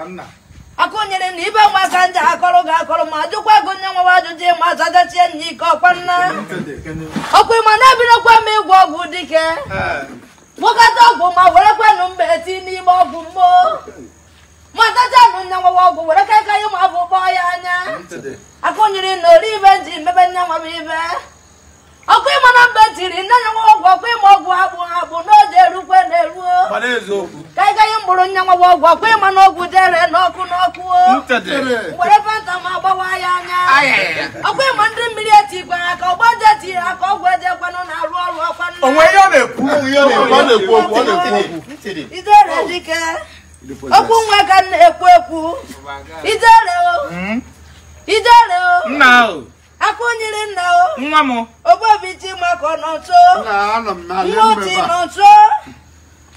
akụnyere na ibe nwaka ndị akọrọ ga akọrọ ma jụkwa gị onye nwewa ajụjụ ịma azagachie nna ike ọkwa nna ọkwa ịma na-ebirokwa m ịgwọ ọgwụ dike gwọkọta eh. ọgwụ ma were nụ mgbe eti n'ime ọgwụ mgbo ma tachanụ nya nwewa ọgwụ were ka aka ya ma bụ kpọọ ya anya akụnyere na ori ibe ji mebe nya nwebe ibe ọkụ ịma na mba tiri nne ya nwa ọgwụ ọkụ ịma ọgwụ agbụ agbụ n'oge erukwe na-eruo ka anyị gaghị mkpụrụ nya nwa ọgwụ ọkụ ịma na ọgwụ dere n'ọkụ n'ọkụ mgbere fanta ma agbawa ya anya ọkụ ịma ndị mmiri etigwara ka ọgba je etiri aka ọgwụ ejekwanụ na-arụ ọrụ ọkwanụ idere dike okwu nwa ka m na-ekwu ekwu idere o hmm? idere o nna o nwa m obobi chima ka ọ nọ nso nwotu nọ nso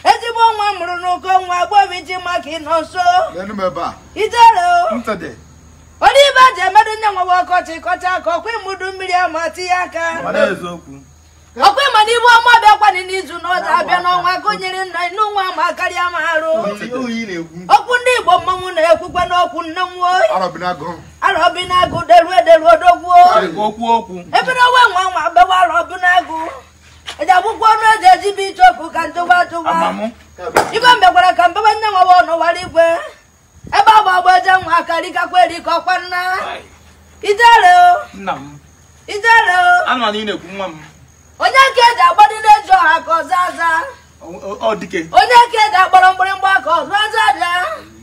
ezigbo nwa mụrụ n'ụkọ nwa obobi chima ka ị nọ nso ijere onye ibe ji emerụ nye nwawa ọkọchị kọcha ka ọkwa ịmụdu mmiri ama tinye aka ọkwa ịma n'ibu ibu ọma bịakwanị n'izu n'ọzọ abịa n'ọnwa gụnyere nna n'ụwa ma karịa ma arụ okwu ndị igbo mmanwụ na-ekwukwa n'okwu nnenwo gbawara obi n'agụ deru ederu odogwuo ebere owe nwa nwa n'agụ e e eji akwụkwọ ọnụ eji ejibe iche okwu ka ntụgwa atụgwa ibe mbekwara ka mbewe nne nwawa ọnụwara igwe ebe agba agba eje nwa erika ọkwa nna ijere ijere onye nke eji agbadide eji ọha ka ọzọ aza onye nke eji akpọrọ mgbịrịgba ka ọzọ aza bịa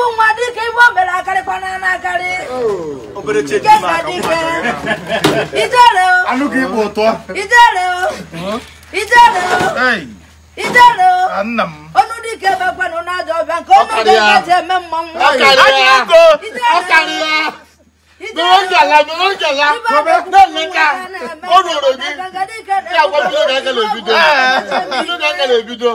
bụ nwa dike ibe o mere akarịkwana n'akarị ijere o ijere o ijere ọnụ dike bakwanụ n'aja ọbịa nke ọnụ dike ji eme mmanwụ Gbẹ̀rọ̀jàlá gbẹ̀rọ̀jàlá gbẹ̀lẹ́ka ó rọrọ̀ bí. Ṣé àgbọ̀dún ló dákẹ́ lè bí dọ́? Ló dákẹ́ lè bí dọ́?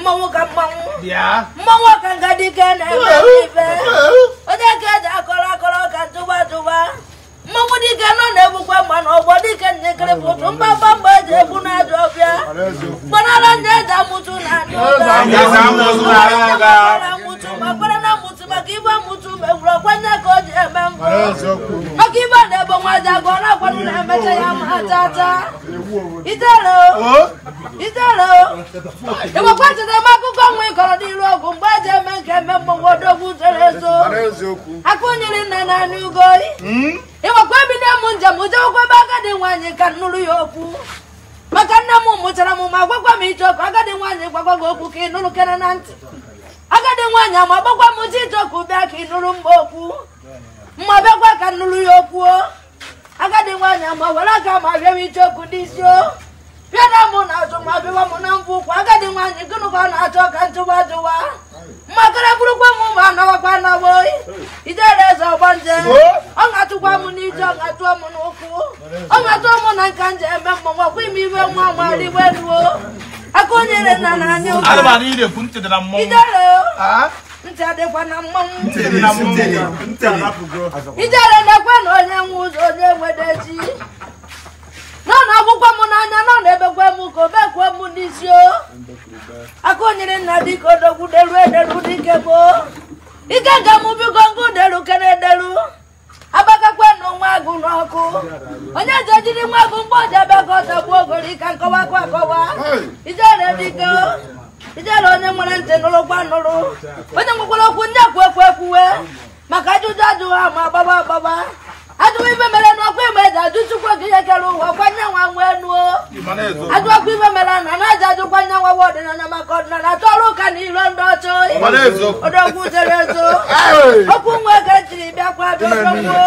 mmanwụ ka mmanwụ mmanwụ ka nga dike na-eme ife onye ka eji akọrọ akọrọ ka ntụba ntụba mmanwụ dike nọ na-egbukwa mma na ọgbọ dike bụtụ pụtụ mgbamba mgbe eji egbu na ajọ ọbịa gbanara ndị eji amụtụ na ndị ụka ọkaibe amụtụ mgbe gburu ọkwanye ka o ji eme mbụ ọkaibe na-ebo nwaji agụ ọrụ akwanụ na-emecha ya ma atata itere itere ịgbakwa cheta eme akụkọ nwa ịkọrọ n'iru ọgwụ mgbe eji eme nke eme mgbọnwodogwu zoro ezo aka onyere na naanị ugoyi hmm? ịgbakwa ebido m njem jewekwa ebe agadi nwaanyị ka nụrụ ya okwu maka nne m mụchara m ma gwakwa m iche ọkụ agadi nwaanyị gwakwa gị okwu ka ị nụrụ kere na ntị agadi nwaanyị ama ọ m jijọ ka ụbịa ka ị nụrụ mma okwu mma bịakwa ka nnụrụ ya okwuo agadi nwaanyị ma were aka ma bịa m iche okwu n'isi o bịara m na azụ ma bịwa m na mbụ ụkwụ agadi nwaanyị gịnụkwa na-achọ ka njụwa jụwa mmakara bụrụkwa m ma anọwakwa anawo ijere eze ọgbanje ọ ga-atụkwa m n'ije ọ tụọ atụọ m n'ụkwụ ọ ga-atụọ m na nka nje eme mmọnwụ ọkwa ime iwe nwa nwa riwe ruo akụnyere nna na anya ijere na-ekwe na onye nwe ụzọ onye wedeji nọ n'akwụkwọ m n'anya nọ na-ebekwe m ka obekwuo m n'isi o akụnyere nna dịka odogwu deruo ederu dike gboo ike ga bi nwere ntị nụrụkwa nụrụ onye nwekwara okwu ndị ekwu ekwu ekwuwe maka ajụjụ ajụghị ama agbaba agbaba ajụwa ife mere n'ọkụ ime ji ajụ chukwu gị ihe kere ụwa kwanye nwa nwee nuo ajụọkwa ife mere na na-eji ajụ kwanye nwa nwa ọdịnala maka ọdịnala tọrọ ụka na ilo ndị ọchụ odogwu jere ezo okwu nwa ego bịakwa bịa ọdọgwuo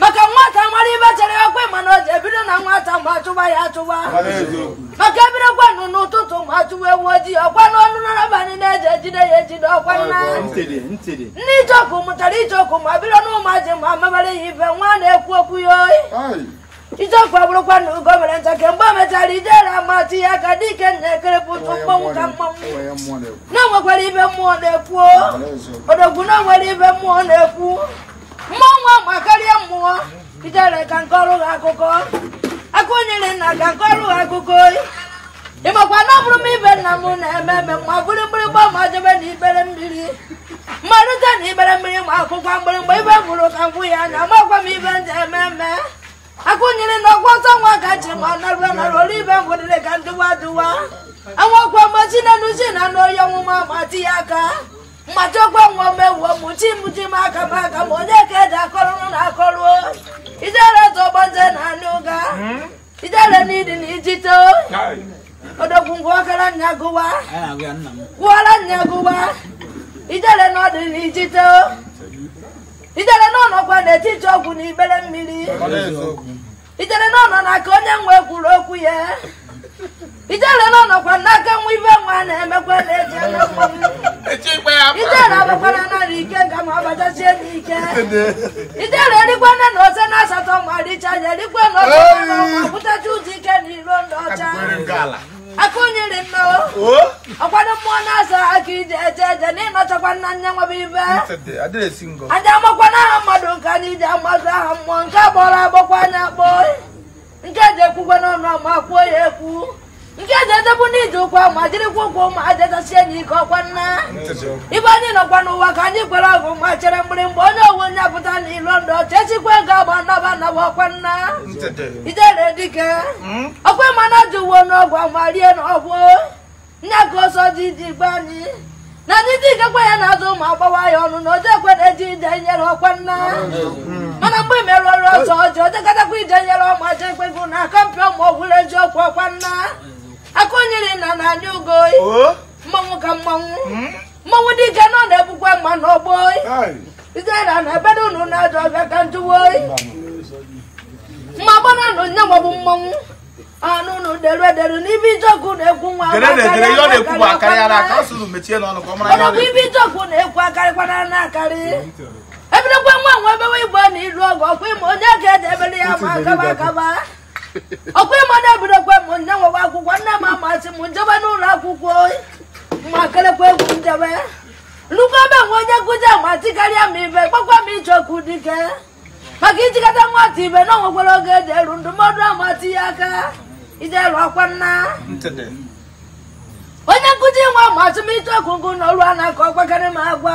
maka nwata mara ibe chere ya ma na o ji ebido na nwata ma achụba ya achụba maka ebidokwanụ n'ụtụtụ ma achụwa ewu ojii ọkwa na n'abalị na-eji ejide ya ejide ọkwa ndị icheoku mụtara icheoku ma bido n'ụmụaji ma mabara ya ibe nwa na-ekwu okwu ya oyi icheoku abụrụkwa na ugo mere ncha kemgbe o mechara ijere amati ya ka dike na-ekerepụ ụtụ mkpọnwụ ka mmanwụ na enwekwara ibe mmụọ na-ekwu odogwu na nwere ibe mmụọ na-ekwu mmụọ ma karịa mmụọ ijere ka nke ọrụ ha akụkọ aka na ka nke ọrụ ha akụkọ ị makwa na ọ bụrụ m ibe nna m na-eme eme ma bụrụ mgbịrịgba ma jebe na ibere mmiri mmalite na ibere mmiri ma akwụkwọ mgbịrịgba ibe bụrụ ka ngwụ ya anya makwa m ibe ndị eme eme na ọgwa ọtọ nwa ka ji ma narụa narụ olu ibe ngwụdịrị ka ndụwa dụwa anwakwa mgbachi na nuzi na anụ oyi ọnwụma ma di ya aka mmachi ọgbanwomewuo mchimchim aka m aka ma onye ka eji akọrụrụ na akọrụo ijere zọgbanje na anụ ga hmm? ijere n'idi na ijite odogwungwu ọkara nya gụwa gwụọra nya gụwa ijere n'ọdị na ijite ijere n'ọnọkwa n'etiti ọgwụ na ibere mmiri ijere n'ọnọ na ka onye nwe kwuru okwu ya ijele nọ nọkwa n'aka nwa ibe nwa na-emekwa na-eji ijele abakwara narị ike ga ma ọbachachie n'ike ijele nne na ose na asatọ ma richa ya erikwa na ọsọ ma pụtacha ụdị ike na iro ndị ọcha aka onyere nna ọkwado mmụọ na-asa aka ije eje eje na ịnọchakwa nna nya nwebe ibe aja amakwana aha mmadụ nke anyị ji amazụ aha mmụọ nke agbọrọ agbọkwa anya kpọọ ekwukwe n'ọnụ ma kwuo ya ekwu nke eji ejebu n'ije ụkwa ma jirikwa ụkwụ ma jejasie anyị ike ọkwa nna ibe anyị nọkwa n'ụwa ka anyị kwere ọgụ ma chere mgbịrịmgba onye owu onye apụta n'ilo ndụ chechikwa ego agba naba naba ọkwa nna ijere dike ọkwa mana ji uwe n'ọgwụ ma rie n'ọgwụ nya ka oso ji iji gbe anyị na ndị dike kwa ya na-azụ ụmụ agbawa ya ọnụ na oje ekwe na-eji ije nyere ọkwa nna mana mgbe merụ ọrụ ọsọ ọjọọ ojegatakwa ije nyere ọma ọjọ ekwe na akọmpi ụmụ eji ọkwa nna aka onyere na na anya ugo mmanwụ ka mmanwụ hmm? mmanwụ dike nọ na-ebukwa mma n'ọgbọ ijena na ebedo ụnụ na-ajọ ọbịa ka njuwo mma gbana nụ nye mmanwụ ọnụ ụnụ dere edere n'ibe ijeọkụ na-ekwu nwa ọnụkwu ibe ijeọkụ na-ekwu akarịkwana na akarị ebirekwa nwa nwa ebewe igbo na iru ọgụ ọkwa ime onye ga-eji ebere ya ma akaba akaba ọkwa ime onye ebirekwa m nne nwewa akwụkwọ nne m amasị m njebe n'ụlọ akwụkwọ ma kerekwa egwu njebe nnukwu ebe nwe onye nkụzi amasị karịa m ibe gbakwa m ije ọkụ dike maka ijikọta nwata ibe na onwekwara oge eji eru ndụmọdụ amasị ya aka ije lụọ kwanna onye nkụzi nwa ma atụmịtụ ọgụgụ n'ọrụ a na-akọ ọgbakarị ma agwa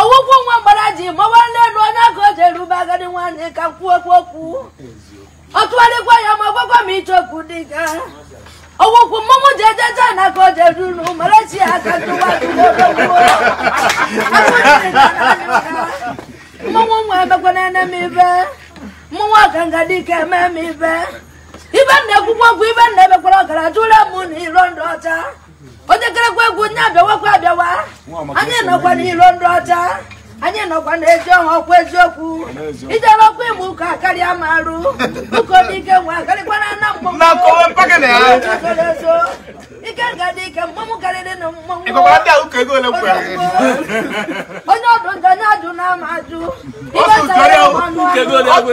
ọgwụgwụ nwa mgbara ji mawa n'elu onye aka o ji erube agadi nwaanyị ka m kwuo okwu okwu ọ tụgharịkwa ya ma gwakwa m ịchọ okwu dị ka ọgwụkwụ mmọnwụ ji ejeje na aka o ji eru mara chi ya aka tụwa mmọnwụ nwa emekwana ene m ibe mmọnwụ ọka nga dike eme m ibe ibe na-ekwukwa ọgwụ ibe na-emekwara ọgaraja ụra m na iro ndụ ọcha onye kerekwa egwu nye abịawakwa abịawa anyị nọkwa na iro ndị ọcha anyị nọkwa na-eji ọha ọkwa eziokwu ijere ọkwa ịmụ ụka karịa ma arụ ụka dike nwe akarịkwara na mgbọmso ike nga dị ike mgbanwụ karịrị na mmanwụ onye ọdụ ndị onye ajụ na ama ajụ ibe sara ọnụ ahụ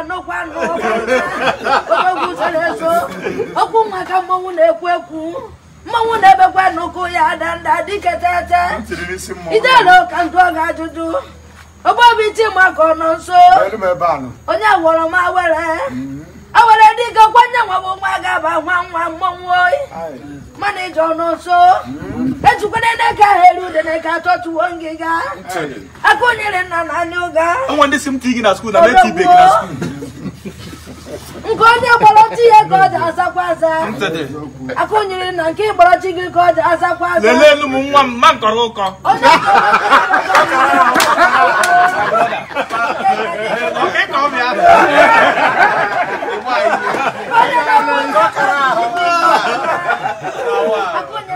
anọ kwa anọ ogwu sere maka mmọnwụ na-ekwu ekwu mmọnwụ na-ebekwa n'ụkwụ ya adanda dike tete idela ụka ndụ ọga ajụjụ ogbobi maka ọnọ nso onye gwọrọ m awere mm-hmm. awere dike kwanye nwa bụ nwa ga-aba nwa nwa mmọnwụ oyi mana ije ọnụ nso mm-hmm. ejikwana n'eke ahụ eru ude n'eke ngịga na anya na na na nke onye gbọrọchi ihe ka ọ ji azakwa aza aka onyere nna nke ịgbọrọchi gị ka ọ ji azakwa aza lelee nwa m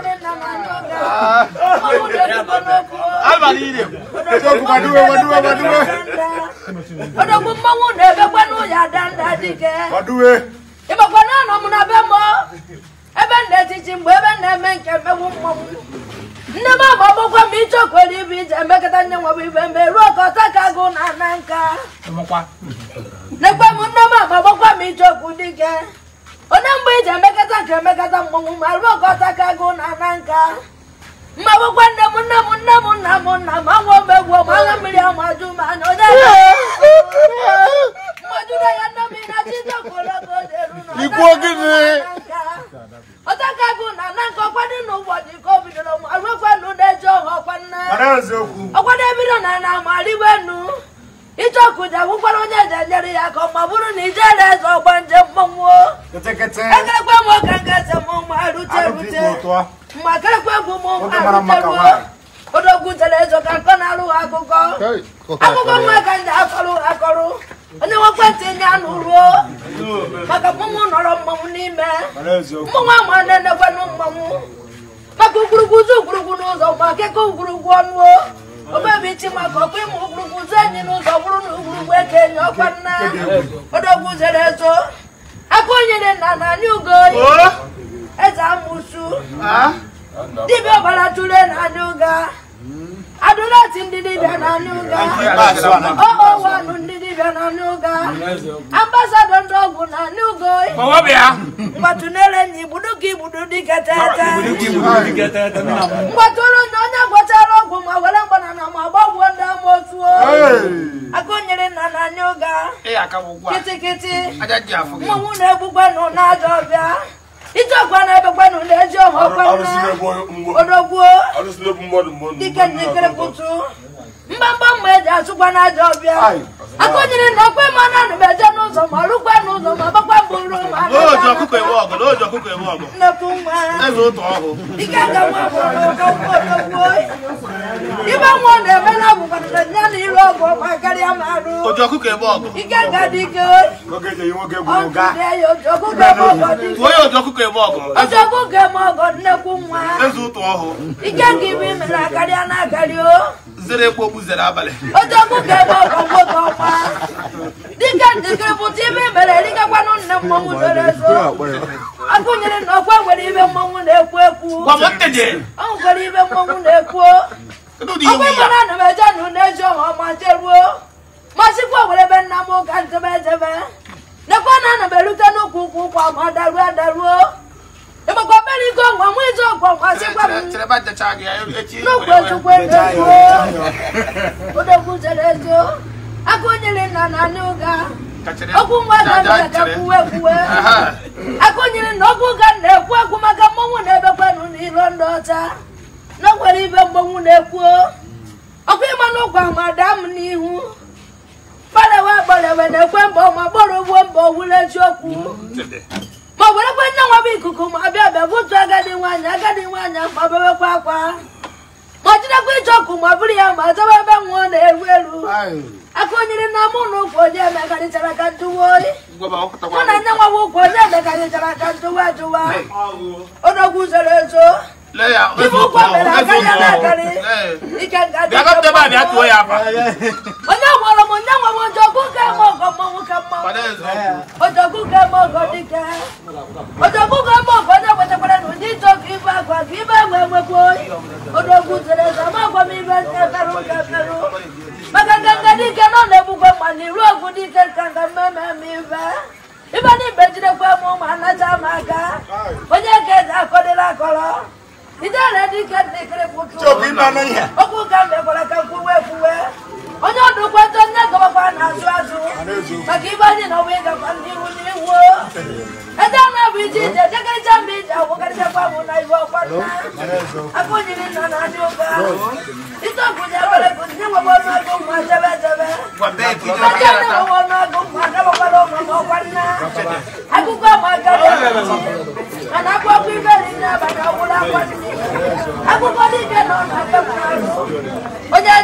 abalire okubadube badube badube odogbu mmanwụ na-ebekwe n'ụlọ adanda dike badube ịbakwa naanọ m na be m ebe m na-etiti mgbe ebe na-eme nke mmewu mmanwụ nne m ama ọgbọkwa m ichekwere nye ruo ka na nka m nne m ama ọgbọkwa m ichekwu dike onye mgbe emekọta nke emekọta mmanwụ ma ruo ka ka na nka mmagbụkwa nne m nne m nne m nna m nna m anwụ omegwu ọgbara mmiri ma mana onye na ya nne m na ọta ka bụ na na nke ọkwadị na ụbọchị ka o bidoro arụkwenu na-eji ọha ọkwanna ọkwado ebido na na amarịwenu icheoku ji agwụkwara onye eji enyere ya ka ọ ma bụrụ na ijere akụkọ nwa ka ndị akọrọ akọrọ onye nwekwentị ndị anụ ruo maka mmanwụ nọrọ mmanwụ n'ime mmanwụ ama na-enekwanụ mmanwụ maka ugwurugwu ụzọ ugwurugwu n'ụzọ gba akụkọ ugwurugwu ọnụ obebichi maka ọkpa ịmụ ugwurugwu ụzọ enyi n'ụzọ bụrụ na ugwurugwu eke enyi ọkwa nna odogwu zere ezo aka onyere na na anyị ugo eze amụsu ah? dibịa ọbara tụrụ na adị. n'anụ ga oh, oh, na ọnụ ndị na n'anụ ga ndị ọgwụ na go mgbatụnere na igbudu ka igbudu dịka tete mgbatụrụ na onye gwọchara ọgwụ ma were mgbanana ma gbagbuo ndị ama otu akụnyere nna n'anụ ga kịtịkịtị mmanwụ na-egbukwanụ n'aja ọbịa ije ọgwa na-ebekwanụ na-eji ọha ọkwanụ odogbuo dike njikere pụtụ mgbamgba mgbe eji achụkwa n'aja ọbịa akụnyere na okwe mmanụ anụ m n'ụzọ ma rụkwa n'ụzọ ma gbakwa mbụ ruo ma nnekwu nwa ibe nwa na-eme na abụkwanara ya na iru ọgụ karịa ma arụ ike ga dị ike eme nnekwu nwa ike ga ibe imere akarịa na akarịa o zere egbe ogbuzere abalị odogwu ga-ebe ọgwụ oge ọkwa dịka njikere pụta ime mere dịgakwanụ nne mmọnwụ zoro ezo akụnyere na ọkwa nwere ibe mmọnwụ na-ekwu ekwu ọ nwere ibe mmọnwụ na-ekwu ọkwa mana ana m eje na ụna eji ọha ọma jeruo masịkwa were ebe nna m ụka njebe ejebe nekwa na ana m erute n'ụkwụ ụkwụ ụkwụ ama daruo adaruo ịmakwa mere ike ọgwụ ọmụ ezi ọgwụ ọgwụ m na okwu na okwu na-ekwu ekwu maka mmọnwụ na-ebekwanụ na iro ndị ọcha na ibe na-ekwu ọkụ ịma n'ụkwa ma daa m n'ihu gbalewe gbalewe na-ekwe mbọ ma gbọrọ ugbo mbọ wule eziokwu akwa kpọchidekwa ịchọ ọkụ ma bụrụ ya ma chọba ebe nwụọ na-eru elu aka onyere na mụ na ụkwụ onye ka njụwa oyi mụ na nne nwa ụkwụ onye emekarichara ka ajụwa enwewe ojogbu ka eme ọgọ mmanwụ ka mmanwụ ojogbu ka eme ọgọ dike eme ọgọ na ụdị ịchọkụ ibe agwa ka ibe enwe enwekwu oyi odogwu eze ma agwa m ibe nke ferụ nke ferụ maka nganga dike nọ na egbukwa mma na iru ogwu dike nkanga mmemme ma ibe ibe na ibe jidekwa m ụmụ anacha m aka onye ka eze akọdịla akọrọ ijere dike dịkịrị okwu ka m mekwara ka kwuwe kwuwe onye ọdụ ụkwụ eto ndị gọbakwa na-azụ azụ maka ibe anyị na ọbụ ịgakwa n'ihu n'ihu ede anụ bụ iji ije jekarịcha mgbe iji agwụkarịchakwa bụ na ibe ọkwa nna aka onyiri nna na adị ụka ite gụnye ebere gụnye nwebe ọnụọgụ mma jebe jebe aja ndị nwewe ọnụọgụ mma dabakwara ụmụ ma ọkwa nna akụkọ ma aka mana akwụkwọ iberi nne abaka ọgwụrụ akwa nne akụkọ dike na ọnụ aka mma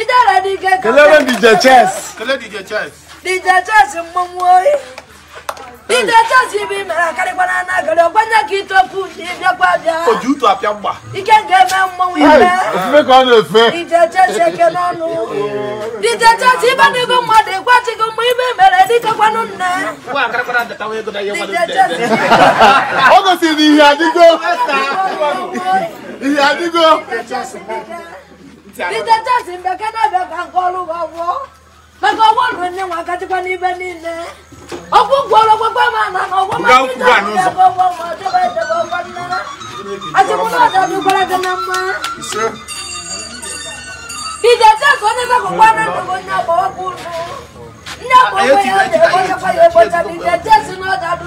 Idara DJ. Kelebe DJ Chess. DJ Chess. DJ DJ Chess bi mera karikwana na gere ogbanya ki topu ni bia kwa bia. Oju to apia gba. Ike nge me mmomoi be. Ofufe ko na efe. DJ Chess eke n'ọnụ. DJ Chess ibe ni go mmadụ igwa chi go mu ibe mere dike kwanụ nne. DJ Chess. si ìyá àdúgbò. Peter Johnson bẹ kẹ́nà bẹ ka ń kọ́lu wọ wọ. Bẹ́ẹ̀ka owó ló ní wọn kẹ́tí pẹ́ níbẹ̀ nínú. Ọkú gbọ́dọ̀ gbogbo máa nà ná owó máa ní tàbí ẹ̀kọ́ wọ wọ ọjọ́ ìdẹ̀bọ̀ ọkọ nínú. Àti kúndà dàbí gbọ́dọ̀ gánà mọ́. Peter Johnson ní bẹ́ẹ̀ kó pọ́n náà lọ́wọ́ ní ọkọ̀ ọkùnrin. Ní ọkọ̀ ọkùnrin yóò dé ọkọ̀ ọkọ̀ yóò bọ̀ tàbí Peter Johnson náà dàbí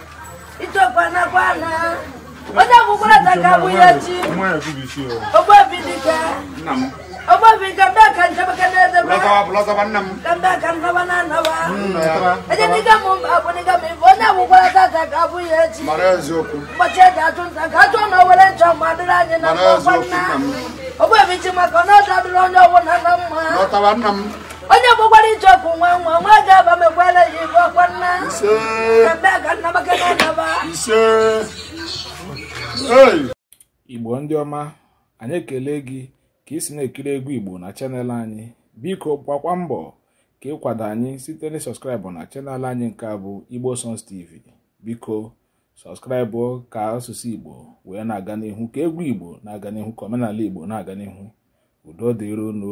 ichekwanakwana onye gwụkwarata ka abụ ya chi ogbobi nke mbe ka mbe aka na anọba ejedịga m onye gwụkwarata ka abụ ya echi ụbọchị eji achụ nta ka achụ na were nchọ ma adịrị anyị na mkpọkwanna nna chi maka ọ na adịrị onye ọbụla na mma onye gbakwara ije ọkụ nwa nwa nwa ga-aba m ekwela ya ọkwa nna igbo ndị ọma anyị ekele gị ka ị na-ekiri egwu igbo na chanel anyị biko gbakwa mbọ ka ịkwado anyị site na sọskraịbụ na chanel anyị nke a bụ igbo Sons tv biko sọskraịbụ ka asụsụ igbo wee na-aga n'ihu ka egwu igbo na-aga n'ihu ka omenala igbo na-aga n'ihu udo dịrono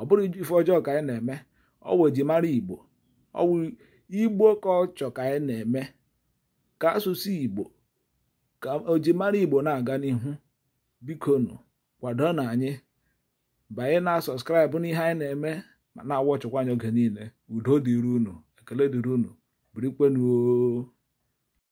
ọ bụrụ ife ọjọọ ka anyị na-eme ọwụ ejimara igbo ọwụ igbo ka ọ ka anyị na-eme ka asụsụ igbo ka ojimara igbo na-aga n'ihu bikonu kwado na anyị banye na sọskraịbụ n'ihe anyị na-eme ma na-awọchịkwa anya oge niile udo dịrị unu ekele dịrị unu